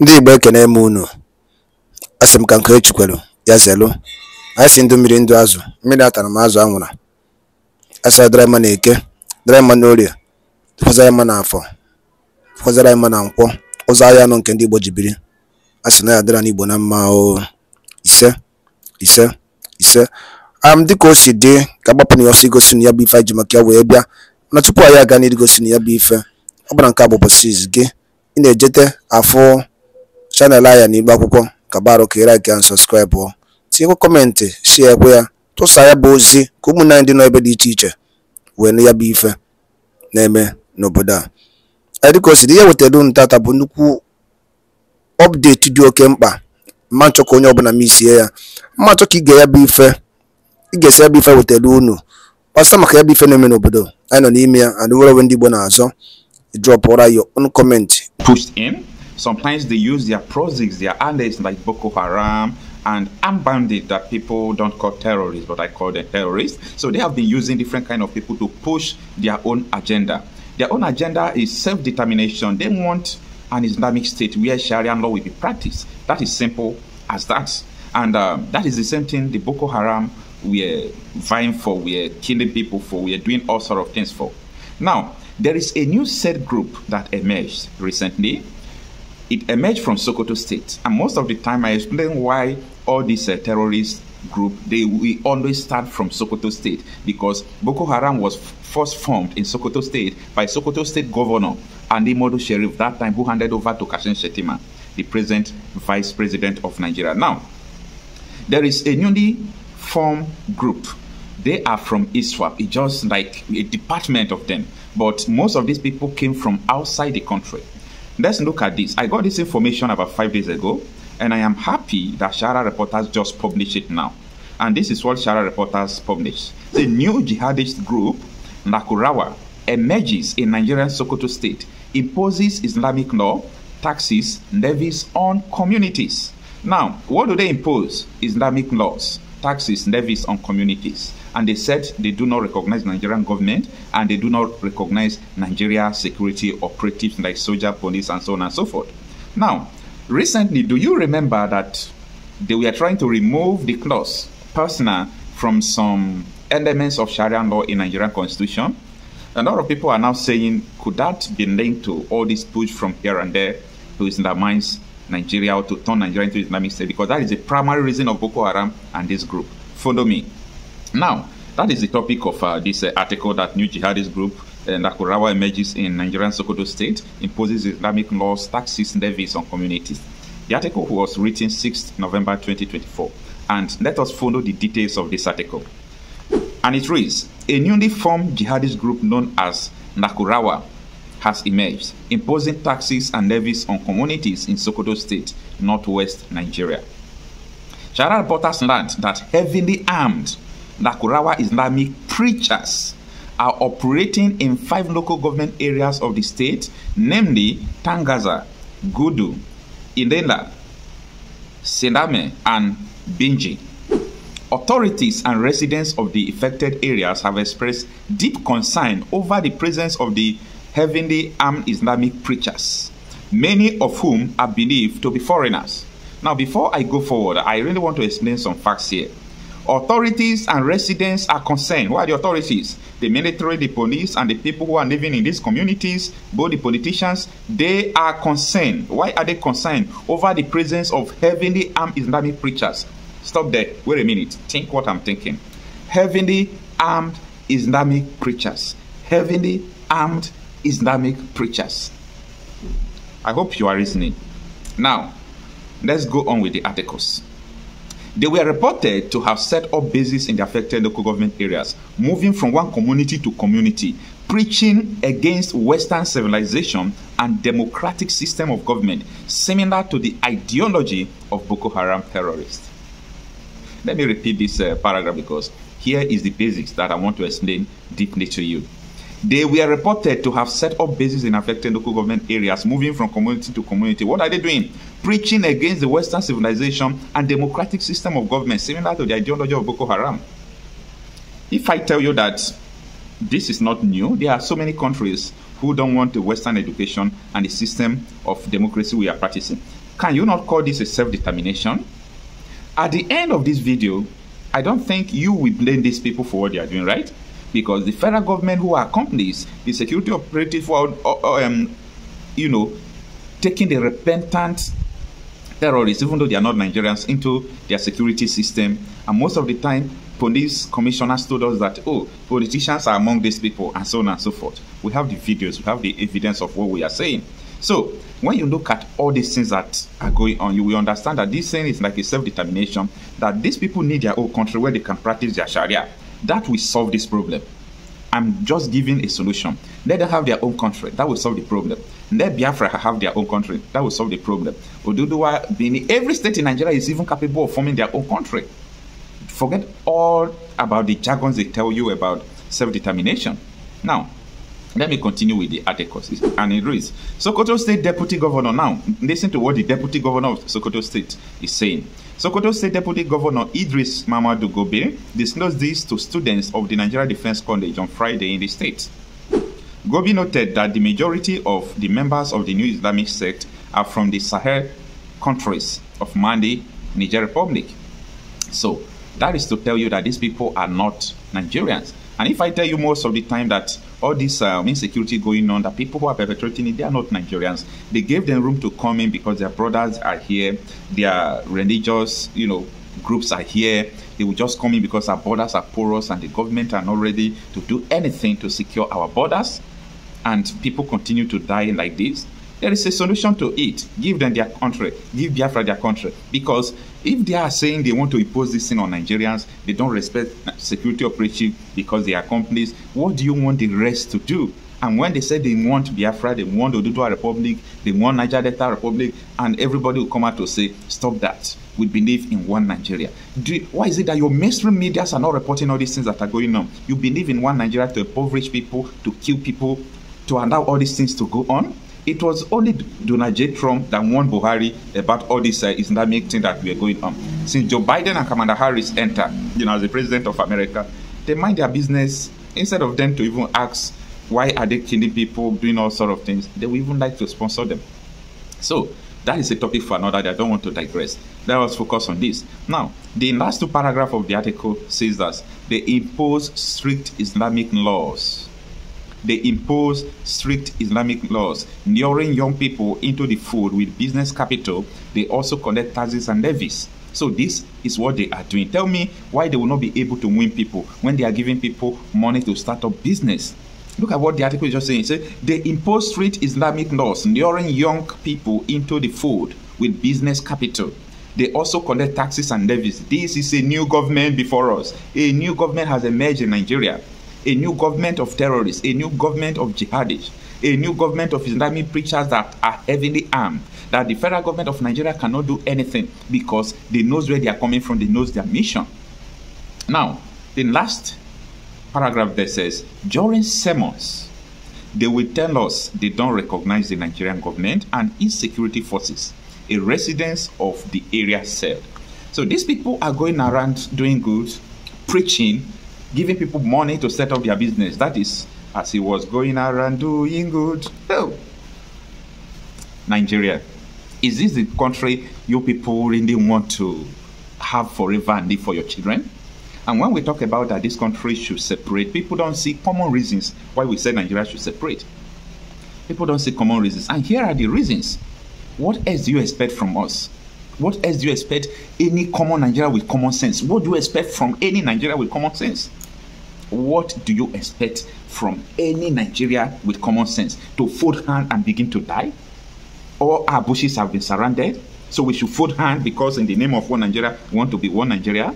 Ndị Igbo ekene m unu, asị m ka nke kwelu ya zelu anyị si ndụ mmiri ndụ azụ, mmiri atara m azụ anwụra, a sara dara mma n'eke, dara mma n'orie, tụkwasara mma n'afọ, tụkwasara mma na nkwọ, ụzọ ahịa nọ nke ndị Igbo ji biri, a na ya n'Igbo na mma o ise ise ise am dịka o si dị ka agbapụ na ya ọsọ igosi na ya bụ ife anyị ji maka ya wee bịa na tupu anyị aga gosi na ya bụ ife ọ bụla nke a bụ gị ị na-ejete afụ chanel anyị na Akwụkwọ ka barụka ị laikịa sọskraịbụ tinyekwa kọmentị shie ekwe ya tụsa ya bụ ozi ka ụmụnne dị n'ebe dị iche iche wee ya bụ ife na-eme n'obodo a dịka osi dị ihe wetara unu tata bụ nnukwu ọpdeti dị oke mkpa mma nchọ ka onye ọbụla m isie ya mma nchọ ka ige ya bụ ife ị esi ya bụ ife wetara unu kpasa maka ya bụ ife na-eme n'obodo anyị nọ n'ime ya and were onwe ndị Igbo na-azọ drọpụra your own comment Sometimes they use their proxies, their allies like Boko Haram and unbound bandits that people don't call terrorists, but I call them terrorists. So they have been using different kind of people to push their own agenda. Their own agenda is self-determination. They want an Islamic state where Sharia law will be practiced. That is simple as that. And um, that is the same thing the Boko Haram we're vying for, we're killing people for, we're doing all sort of things for. Now, there is a new set group that emerged recently it emerged from Sokoto State. And most of the time, I explain why all these uh, terrorist group they we always start from Sokoto State because Boko Haram was first formed in Sokoto State by Sokoto State Governor Andy Modu Sheriff that time, who handed over to Kashin Shetima, the present Vice President of Nigeria. Now, there is a newly formed group. They are from ISWAP. It's just like a department of them. But most of these people came from outside the country Let's look at this. I got this information about five days ago, and I am happy that Shara Reporters just published it now. And this is what Shara Reporters published. The new jihadist group, Nakurawa, emerges in Nigerian Sokoto state, imposes Islamic law, taxes, levies on communities. Now, what do they impose? Islamic laws, taxes, levies on communities and they said they do not recognize Nigerian government and they do not recognize Nigeria security operatives like soldier, police, and so on and so forth. Now, recently, do you remember that they were trying to remove the clause personal from some elements of Sharia law in Nigerian constitution? A lot of people are now saying, could that be linked to all this push from here and there to Islamize Nigeria or to turn Nigeria into Islamic State? Because that is the primary reason of Boko Haram and this group. Follow me. Now, that is the topic of uh, this uh, article that new jihadist group uh, Nakurawa emerges in Nigerian Sokoto state, imposes Islamic laws, taxes, levies on communities. The article was written 6th November 2024, and let us follow the details of this article. And it reads, a newly formed jihadist group known as Nakurawa has emerged, imposing taxes and levies on communities in Sokoto state, northwest Nigeria. Sharar borders learned that heavily armed Nakurawa Islamic preachers are operating in five local government areas of the state, namely Tangaza, Gudu, Indela, Sename, and Binji. Authorities and residents of the affected areas have expressed deep concern over the presence of the heavily armed Islamic preachers, many of whom are believed to be foreigners. Now, before I go forward, I really want to explain some facts here. Authorities and residents are concerned. Who are the authorities? The military, the police, and the people who are living in these communities, both the politicians, they are concerned. Why are they concerned? Over the presence of heavenly armed Islamic preachers. Stop there. Wait a minute. Think what I'm thinking. Heavenly armed Islamic preachers. Heavenly armed Islamic preachers. I hope you are listening. Now, let's go on with the articles. They were reported to have set up bases in the affected local government areas, moving from one community to community, preaching against Western civilization and democratic system of government, similar to the ideology of Boko Haram terrorists. Let me repeat this uh, paragraph because here is the basics that I want to explain deeply to you. They were reported to have set up bases in affected local government areas, moving from community to community. What are they doing? preaching against the Western civilization and democratic system of government, similar to the ideology of Boko Haram. If I tell you that this is not new, there are so many countries who don't want the Western education and the system of democracy we are practicing. Can you not call this a self determination? At the end of this video, I don't think you will blame these people for what they are doing, right? Because the federal government who are companies, the security operative uh, uh, um, you know, taking the repentant terrorists, even though they are not Nigerians, into their security system. And most of the time, police commissioners told us that, oh, politicians are among these people, and so on and so forth. We have the videos, we have the evidence of what we are saying. So, when you look at all these things that are going on, you will understand that this thing is like a self determination, that these people need their own country where they can practice their Sharia. That will solve this problem. I'm just giving a solution. Let them have their own country. That will solve the problem. Let Biafra have their own country. That will solve the problem. Oduduwa, Bini, every state in Nigeria is even capable of forming their own country. Forget all about the jargons they tell you about self-determination. Now, let me continue with the articles. And it reads Sokoto State Deputy Governor now. Listen to what the Deputy Governor of Sokoto State is saying. Sokoto State Deputy Governor Idris Mamadou Gobe disclosed this to students of the Nigeria Defense College on Friday in the state. Gobi noted that the majority of the members of the new Islamic sect are from the Sahel countries of Mali, Niger Republic. So that is to tell you that these people are not Nigerians. And if I tell you most of the time that all this um, insecurity going on, that people who are perpetrating it, they are not Nigerians. They gave them room to come in because their brothers are here, their religious, you know, groups are here. They will just come in because our borders are porous and the government are not ready to do anything to secure our borders. And people continue to die like this. There is a solution to it. Give them their country. Give Biafra their country. Because If they are saying they want to impose this thing on Nigerians, they don't respect security operation because they are companies, what do you want the rest to do? And when they say they want Biafra, they want Oduduwa Republic, they want Niger Delta Republic, and everybody will come out to say, stop that. We believe in one Nigeria. You, why is it that your mainstream medias are not reporting all these things that are going on? You believe in one Nigeria to impoverish people, to kill people, to allow all these things to go on? It was only Donald J. Trump that warned Buhari about all this uh, Islamic thing that we are going on. Since Joe Biden and Kamala Harris enter, you know, as the president of America, they mind their business instead of them to even ask why are they killing people, doing all sort of things. They would even like to sponsor them. So that is a topic for another day. I don't want to digress. Let us focus on this. Now, the last two paragraph of the article says that they impose strict Islamic laws they impose strict Islamic laws, luring young people into the fold with business capital. They also collect taxes and levies. So this is what they are doing. Tell me why they will not be able to win people when they are giving people money to start up business. Look at what the article is just saying. It says they impose strict Islamic laws, luring young people into the fold with business capital. They also collect taxes and levies. This is a new government before us. A new government has emerged in Nigeria a new government of terrorists, a new government of jihadists, a new government of Islamic preachers that are heavily armed, that the federal government of Nigeria cannot do anything because they knows where they are coming from, they knows their mission. Now, the last paragraph there says, during sermons, they will tell us they don't recognize the Nigerian government and its security forces, a residence of the area said. So these people are going around doing good, preaching, giving people money to set up their business. That is, as he was going around doing good. Oh, Nigeria. Is this the country you people really want to have forever and live for your children? And when we talk about that this country should separate, people don't see common reasons why we say Nigeria should separate. People don't see common reasons. And here are the reasons. What else do you expect from us? What else do you expect any common Nigeria with common sense? What do you expect from any Nigeria with common sense? what do you expect from any Nigeria with common sense? To fold hand and begin to die? All our bushes have been surrounded, so we should fold hand because in the name of one Nigeria, we want to be one Nigeria?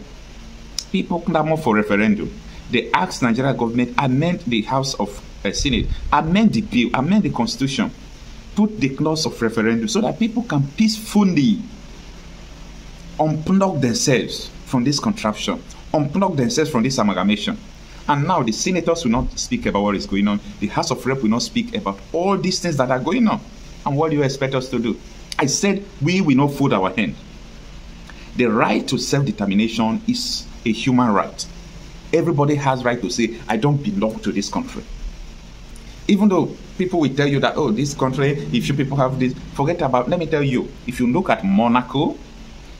People clamor for referendum. They ask Nigeria government amend the House of uh, Senate, amend the bill, amend the constitution, put the clause of referendum so that people can peacefully unplug themselves from this contraption, unplug themselves from this amalgamation. And now the senators will not speak about what is going on. The House of Rep will not speak about all these things that are going on. And what do you expect us to do? I said we will not fold our hand. The right to self-determination is a human right. Everybody has right to say, I don't belong to this country. Even though people will tell you that, oh, this country, if you people have this, forget about, let me tell you, if you look at Monaco,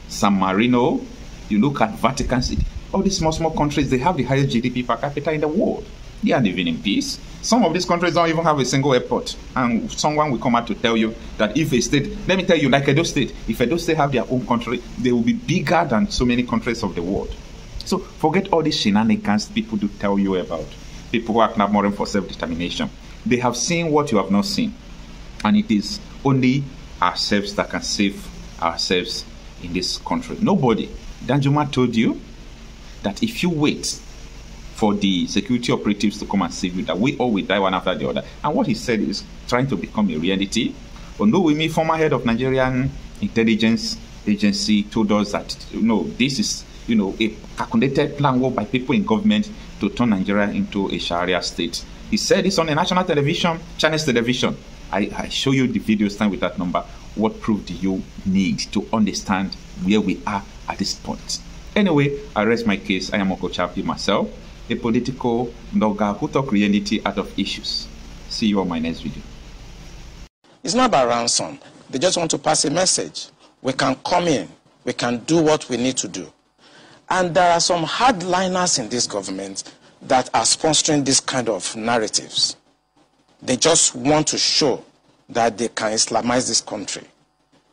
San Marino, you look at Vatican City, all these small, small countries, they have the highest GDP per capita in the world. They are living in peace. Some of these countries don't even have a single airport. And someone will come out to tell you that if a state, let me tell you, like Edo State, if Edo State have their own country, they will be bigger than so many countries of the world. So forget all these shenanigans people do tell you about. People who are not clamoring for self-determination. They have seen what you have not seen. And it is only ourselves that can save ourselves in this country. Nobody. Danjuma told you that if you wait for the security operatives to come and save you, that we all will die one after the other. And what he said is trying to become a reality. Onowimi, former head of Nigerian intelligence agency, told us that you know this is you know a calculated plan work by people in government to turn Nigeria into a Sharia state. He said this on a national television, Chinese television. I, I show you the video stand with that number. What proof do you need to understand where we are at this point? Anyway, I rest my case. I am Uncle Chappie myself, a political blogger who talk reality out of issues. See you on my next video. It's not about ransom. They just want to pass a message. We can come in. We can do what we need to do. And there are some hardliners in this government that are sponsoring this kind of narratives. They just want to show that they can Islamize this country.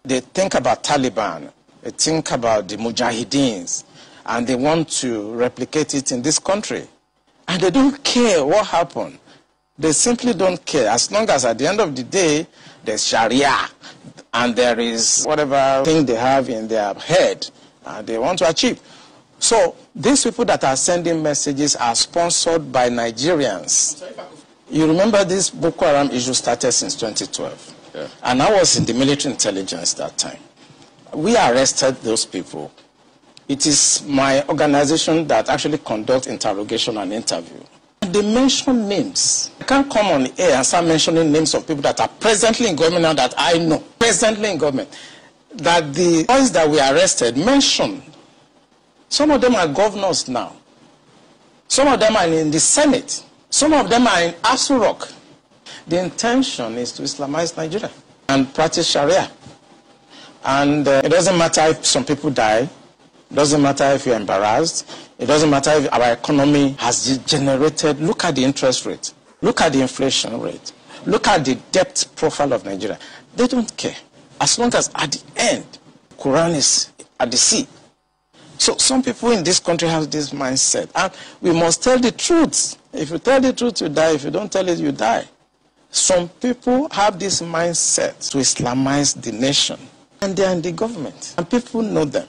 They think about Taliban uh, think about the Mujahideens and they want to replicate it in this country. And they don't care what happened. They simply don't care. As long as at the end of the day, there's Sharia and there is whatever thing they have in their head and they want to achieve. So these people that are sending messages are sponsored by Nigerians. You remember this Boko Haram issue started since 2012. Yeah. And I was in the military intelligence that time. we arrested those people. It is my organization that actually conducts interrogation and interview. They mention names. I can't come on air and start mentioning names of people that are presently in government now that I know, presently in government, that the ones that we arrested mentioned. Some of them are governors now. Some of them are in the Senate. Some of them are in Asurok. The intention is to Islamize Nigeria and practice Sharia. And uh, it doesn't matter if some people die, it doesn't matter if you're embarrassed, it doesn't matter if our economy has degenerated. Look at the interest rate, look at the inflation rate, look at the debt profile of Nigeria. They don't care. As long as at the end, Quran is at the sea. So some people in this country have this mindset. And we must tell the truth. If you tell the truth, you die. If you don't tell it, you die. Some people have this mindset to Islamize the nation. And they are in the government. And people know them.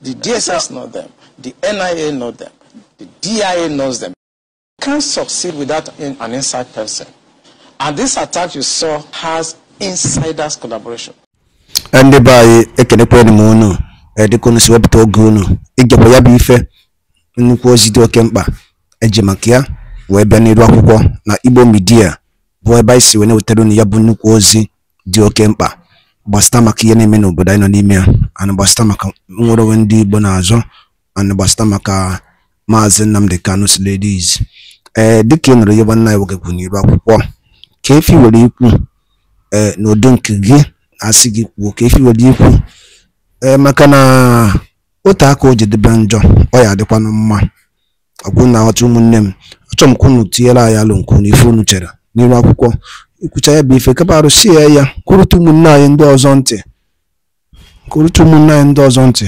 The DSS know them. The NIA know them. The DIA knows them. You can't succeed without an inside person. And this attack you saw has insiders collaboration. ndị be anyị ekenekwa m unu edekonu si wepụta oge unu ịgakwa ya bụ ife nnukwu ozi dị oke mkpa eji wee bịa n'iru akwụkwọ na igbo midia bụ ebe anyị si wee na-wetara ya bụ nnukwu ozi dị oke mkpa gbasịta maka ihe na-eme n'obodo anyị nọ n'ime ya ana gbasịta maka nwere onwe ndị Igbo na-azọ ana maka maazị Nnamdi Kanu Ladies ee eh, dịka ị nụrụ ihe nwanne anyị nwoke kwuru n'iru akwụkwọ ka efi were ikwu ee eh, n'ụdị nke gị asị gị kwuo ka efi were ikwu ee eh, maka na otu aka o jedebe njọ ọ ya adịkwanụ mma ọgwụ na aghọta ụmụnne m achọrọ m ka unu tinyere anyị alụ nkwu unu unu chere n'iru akwụkwọ ikwucha ya bụ ife kapa arụsie ya ya kwurụta ụmụnne anyị ndị ọzọ ntị kwurụta ụmụnne anyị ndị ọzọ ntị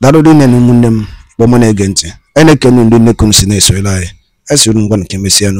darụrị nne na ụmụnne m kpọmụ na-ege ntị a na-ekenu ndị m si na-esorela anyị esoro ngwa nke mesịa